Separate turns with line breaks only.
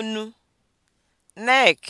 onu (neck)